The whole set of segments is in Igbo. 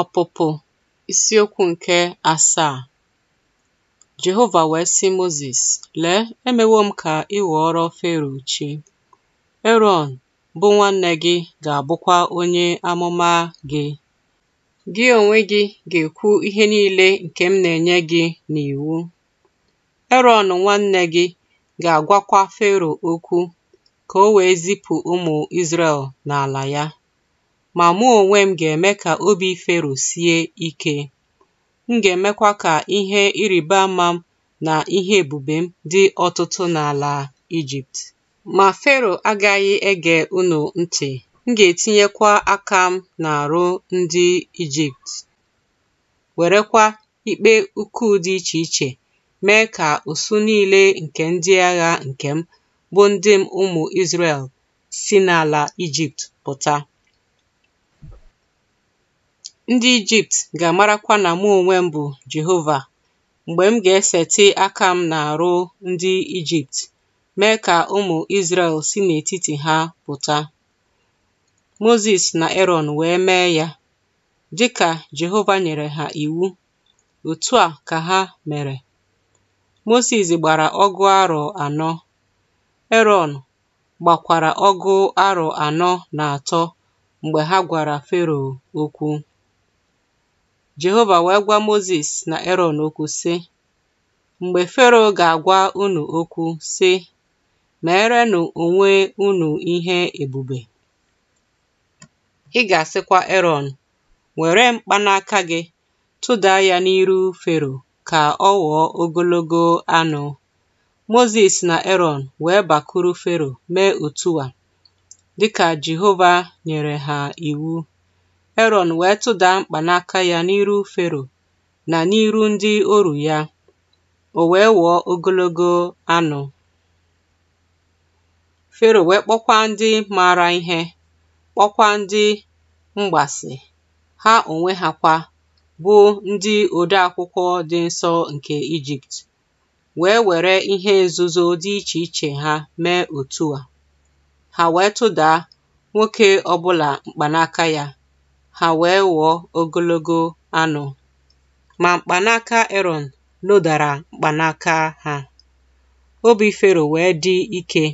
Ọpụpụ isiokwu nke asaa Jehova wee sị Mozis, Lee, emewo m ka ị ghọọrọ Fero chi. Erọn bụ nwanne gị ga-abụkwa onye amụma gị. Gị onwe gị ga-ekwu ihe niile nke m na-enye gị n'iwu. Erọn nwanne gị ga-agwakwa Fero okwu ka o wee zipụ ụmụ Izrel n'ala ya. Ma mụ onwe m ga-eme ka obi Fero sie ike, m ga-emekwa ka ihe ịrịba ama m na ihe ebube m dị ọtụtụ n'ala Ijipt Ma Fero agaghị ege ụnụ ntị, m ga-etinyekwa aka m na-arụ ndị Ijipt werekwa ikpe ukwu dị iche iche mee ka usu niile nke ndị agha nke m bụ ndị m ụmụ Izrēl si n'ala Ijipt pụta. Ndị Ijipt ga-amarakwa na mụ onwe m bụ Jehova mgbe m ga eseti aka m n'arụ ndị Ijipt, mee ka ụmụ Izrel si n'etiti ha pụta. Mozis na Aaron wee mee ya, dịka Jehova nyere ha iwu, otu a ka ha mere. moses gbara ọgụ arọ anọ, Erọn gbakwara ọgụ arọ anọ na atọ mgbe ha gwara Fero okwu. Jehova wee gwa Mozis na Eron okwu sị Mgbe Fero ga agwa unu okwu sị meerenụ onwe unu ihe ebube ị ga-asịkwa Erọn were mkpanaka gị tụda ya n'iru Fero ka ọ ghọọ ogologo anụ Mozis na Eron wee bakuru Fero mee otu a dịka Jehova nyere ha iwu Heron wee tụdaa mkpanaka ya n'iru Fero na n'iru ndị oru ya, o wee wụọ ogologo anụ. Fero wee kpọkwa ndị maara ihe, kpọkwa ndị mgbasị, ha onwe ha kwa bụ ndị odeakwụkwọ dị nsọ nke Ijipt, wee were ihe nzuzo dị iche iche ha mee otu a. Ha wee tụda nwoke ọbụla mkpanaka ya, ha wee ghọọ ogologo anụ, ma mkpanaka Eron lodara mkpanaka ha. Obi Fero wee dị ike,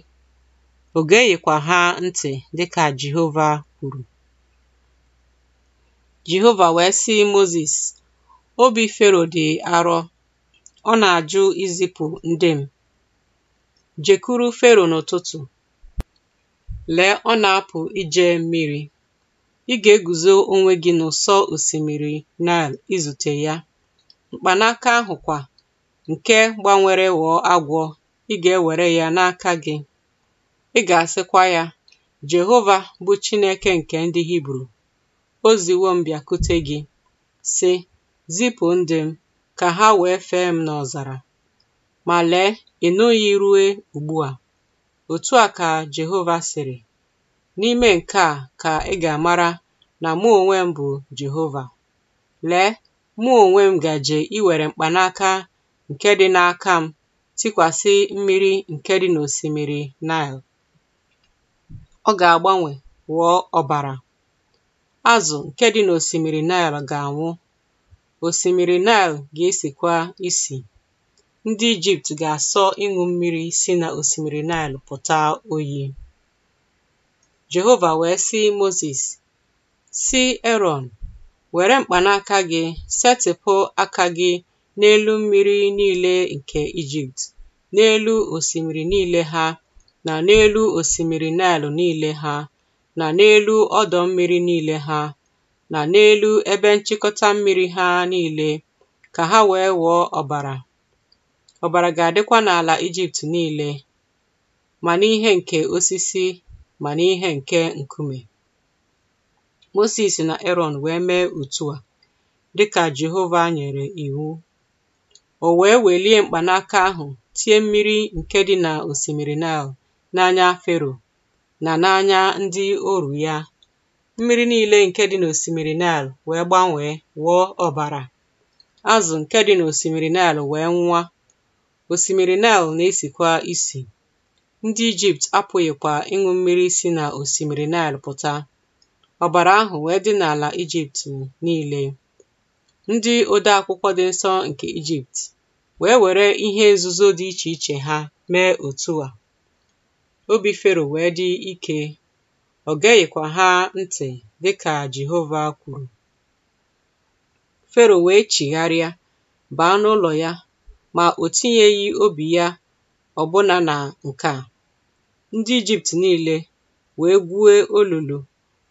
o geghịkwa ha ntị dịka Jehova kwuru. Jehova wee sị moses obi Fero dị arọ, ọ na-ajụ izipu ndị m. Jekuru Fero n'ụtụtụ, lee ọ na-apụ ije mmiri. ị ga-eguzo onwe gị n'ụsọ osimiri Nile izute ya. Mkpanaka ahụ kwa, nke gbanwere ghọọ agwọ ị ga-ewere ya n'aka gị ị ga-asịkwa ya, Jehova bụ Chineke nke ndị Hibru o ziwo m gị, sị "Zipụ ndị m ka ha wee fee m n'ọzara." Ma lee ị nụghị ruo ugbu a! òtu a ka Jehova sịrị. N'ime nke a ka ị ga-amara na mụ onwe m bụ Jehova. Lee, mụ onwe m gaje iwere mkpanaka nke dị n'aka m tikwasị mmiri nke dị n'osimiri Naịl. Ọ ga-agbanwe ghọọ ọbara. Azụ nke dị n'osimiri Naịl ga-anwụ. Osimiri Naịl ga esikwa isi. Ndị Ijipt ga-asọ ịṅụ mmiri si n'osimiri Nile pụta oyi. Jehova wee sị Mozis, si Erọn, were mkpanaka gị setịpụ aka gị n'elu mmiri niile nke Ijipt, n'elu osimiri niile ha, na n'elu osimiri nile niile ha, na n'elu ọdọ mmiri niile ha, na n'elu ebe nchịkọta mmiri ha niile, ka ha wee wụọ ọbara. Ọbara ga-adịkwa n'ala Ijipt niile, ma n'ihe nke osisi mana n'ihe nke nkume. Mosis na Aaron wee mee a. dị ka Jehova nyere Iwu. o wee welie mkpanaka ahụ tie mmiri nke dị na osimiri Naịl n'anya Fero na n'anya ndị oru ya mmiri niile nke dị na osimiri Naịl wee gbanwee ghọọ ọbara azụ nke dị na osimiri Naịl wee nwụa osimiri Naịl na-esikwa isi Ndị Ijipt apụghịkwa ịṅụ mmiri si na osimiri Naịl pụta, ọbara ahụ wee dị n'ala Ijipt niile. Ndị odeakwụkwọ dị nsọ nke Ijipt wee were ihe nzuzo dị iche iche ha mee otu a. Obi Fero wee dị ike, ọ geghịkwa ha ntị dị ka Jehova kwuru. Fero wee chigharịa baa n'ụlọ ya ma o tinyeghị obi ya ọbụna na nke a. ndị Ijipt niile wee gwue olulu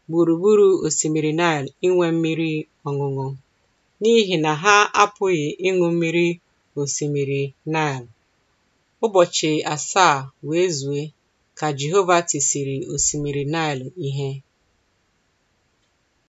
gburugburu osimiri Naịl inwe mmiri ọṅụṅụ, n'ihi na ha apụghị ịṅụ mmiri osimiri Naịl. Ụbọchị asaa wee zue ka Jehova tisiri osimiri Naịl ihe.